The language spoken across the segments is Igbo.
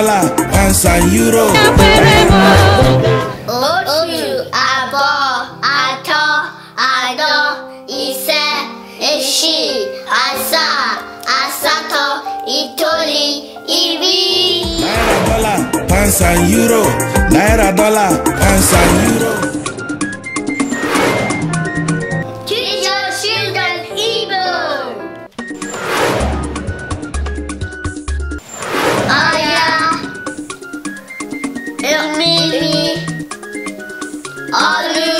dollar pounds and euro. oṣù àbọ̀ àtọ̀ àdọ̀ ìṣẹ́ èṣì àṣà àṣàtọ̀ ìtòrí ìrí. náírà dọ́là pounds and euro náírà dọ́là pounds and euro. Hello,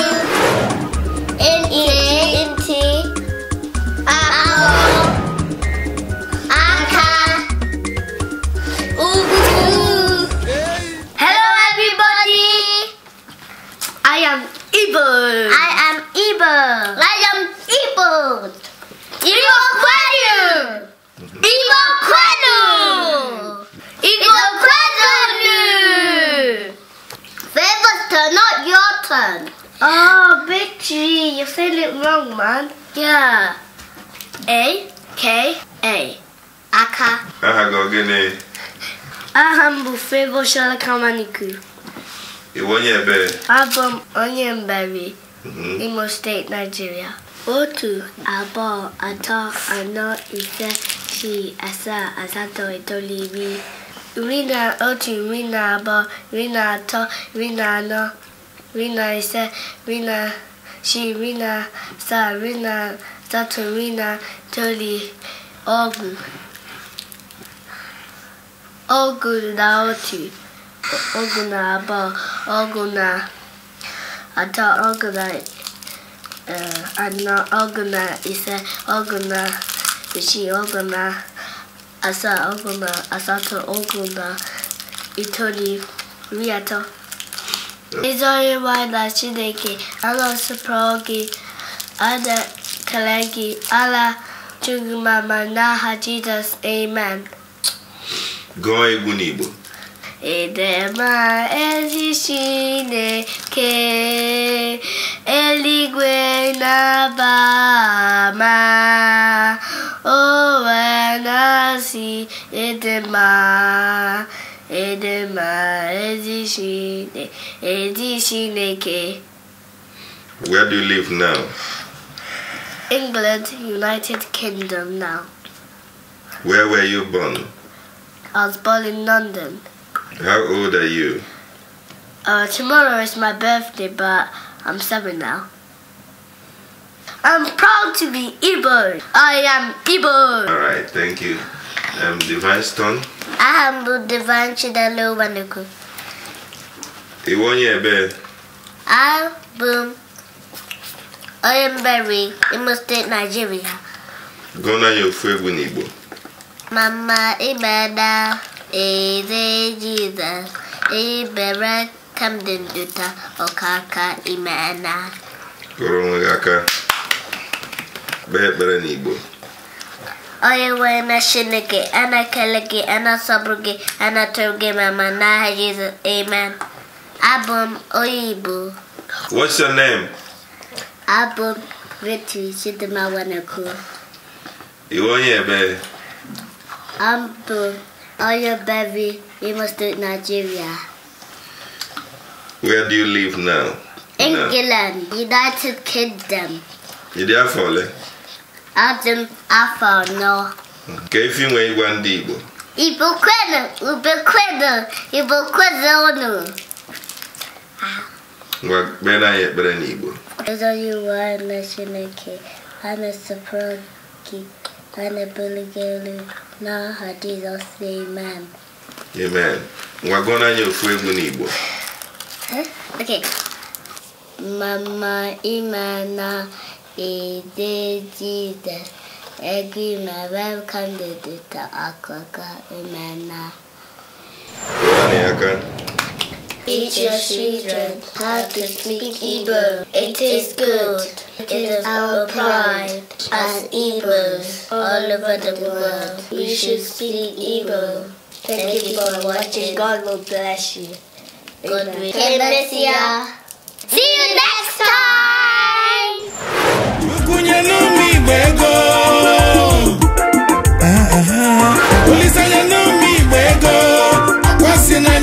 everybody. I am evil. I am evil. I am evil. elephant. Oh, Big G, you said it wrong, man. Yeah. A K A. Aka. Aha go gene. Aha mbufebo shala kama niku. Iwonye ebe. Abom onye mberi. Mhm. Imo State, Nigeria. Otu, abo, ato, ano, ise, shi, asa, asato, etoli, iri. Iri na otu, iri na abo, iri na ato, iri na ano, Rina ise Rina she Rina sa Rina Datu Rina Toli Ogu Ogu na otu Ogu na abụọ Ogu na atọ Ogu na eh, anọ Ogu na ise Ogu na isii Ogu na asaa Ogu na asatọ Ogu na itoli iri atọ Ịzọrị nwanyị na Chineke anọsọpụrụ gị ana-ekele gị ala mama n'aha Jizọs amen gụọ egwu edema ezi Chineke eluigwe na-aba ama o wee edema ma Where do you live now? England, United Kingdom now. Where were you born? I was born in London. How old are you? Uh, tomorrow is my birthday, but I'm seven now. I'm proud to be Igbo. I am Igbo. All right, thank you. Um, Device turn. aha mbụ bụ Devanchi Dalobaneko ịwụ onye a? abụ bụ onye mberi Imo steeti Naijiria gụọna ya ofu egwu n'Igbo mama ịbada eze Jizọs ibere Camden Dota ọkaka imena gụrụ onwe gị aka kpee ekpere n'Igbo وين شنك أنا كلك Jesus Amen What's your name? Abum Ritu Sidima Wanaku Iwo Yebe Ambu baby? Bevi Imo State Nigeria Where do you live now? England, United Kingdom. You there for no. adị m afọ anọ ka efi nwee ịgwa ndị Igbo Igbo kwenu ube kwenu Igbo kwenu unu ngwa kpere anyị ekpere n'Igbo ezonye iwu anyị na Chineke anyị sọpụrụ gị anyị buligo elu n'aha Jizọs amen amen ngwa gụọrọ anyị ofu egwu n'Igbo okay. mama ime na edejide egrima welcome the data akoka imena Teach your children how to speak Hebrew. It is good. It is our pride as Hebrews all over the world. We should speak Hebrew. Thank you for watching. God will bless you. Good week. See you next time.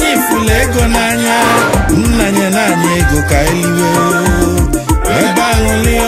anyị fụlụ ego n'anya nna nye naanị ego ka eliwe ebe ahụ